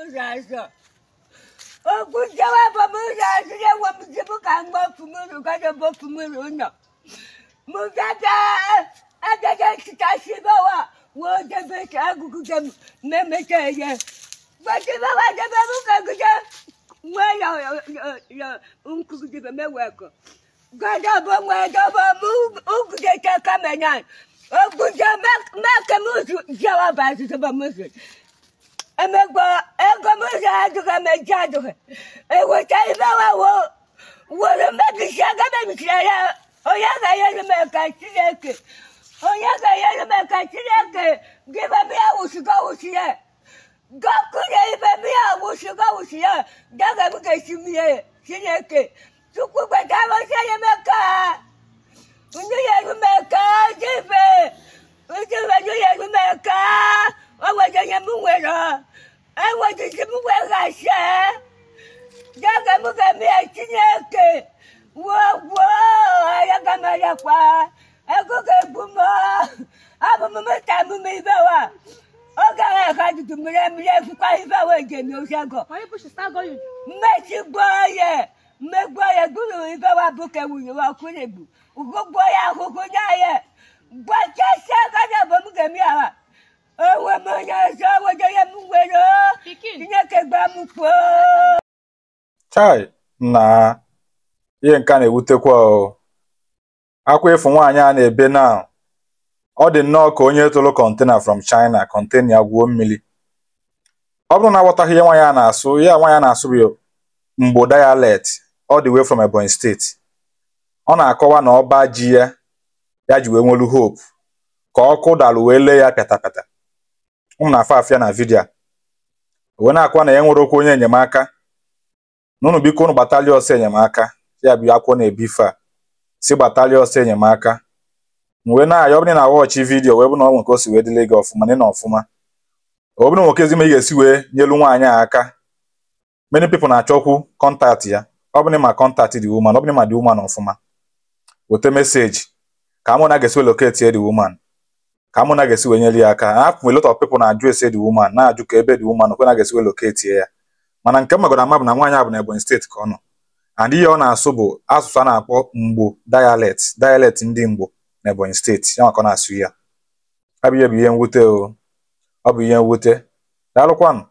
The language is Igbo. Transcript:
Muzazo. Okujawa ba muzazo ya wa muzibu kangwa fumuru kada bo fumuru no. Muzata agaga kitashiba wa wo debe agugu dem meme você Bakiba wa debe mukagu dem. Mwe ya ya ya unkugu debe meweko. Gada bo mwe debe mu ugde te kamenan. Okujawa ma kemu jawa ba zuba muzazo. ame gbɔ egɔme za adoge dza adoge ewo ta yi be wa wo wo le me bisia ge be bisia la oya ga ye le me kati le ke oya ga ye le me kati le ke ge be bi awu si ge awu si ye gɔku mi ke si mi ye si le ke tukugbe ta bo wetiti muke gashe jaka muke mie Chineke wogwo ayaka mayakwa ekuke bumo abumumu tamumu ibewa oge ahụ ka dudu mmiri mmiri efukwa ibewa njem osego mmechi gboo ye mmegbuo ye gburu ibewa bụ ka ewunye wa kwurigbu ugogbuo ya ahụhụ nye ye gbachasịa aka na bụ m ga-eme ya ha onwe m onye ọzọ Chineke gbaa m chai na ihe nke a na-ewutekwa o akwa ịfụ nwaanyị a na-ebe na ọ dị nnọọ ka onye tụrụ kọntena from China kọntena ya gwuo mmiri ọ bụrụ na aghọtaghị ihe nwaanyị a na-asụ ya nwaanyị a na-asụ bụ mgbo dialect ọ dị wee from Ebonyi steeti ọ na-akọwa na ọba ji ya ya ji wee nwelu hope ka ọkụ dalụ wee lee ya pịatapịata ụmụ na afọ afịa na vidiyo wee na-akwa na ya nwere okwu onye enyemaka n'ụnụ biko ụnụ gbatalị ọsọ enyemaka ya bụ akwụkwọ na-ebife a si gbatalị ọsọ enyemaka wee na-ayọ ọbụrụ na wọọchị vidiyo wee bụ na ọ nwere o si wee dịle gị ọfụma na ọfụma ọ bụrụ nwoke ezime ị ga-esi wee nyelu nwaanyị a aka many pipo na-achọkwu kọntaktị ya ọ bụrụ ma kọntaktị dị woman ọ bụrụ ma dị woman ọfụma weta meseji ka amụ na aga ga-esi weloketi dị ka mụ na ga-esi wee nyere ya aka a lot of people na-ajụ ese the woman na-ajụ ka ebe the woman kwe na ga-esi wee locate ya mana nke magoro ama bụ na nwaanyị a bụ na Ebonyi steeti ka ọ nọ and ihe ọ na-asụ bụ asụsụ a na-akpọ mgbo dialect dialect ndị mgbo na Ebonyi steeti ya maka ọ na-asụ ya Abụ bụ ihe bụ ihe mwute o ọ bụ ihe mwute daalụkwanụ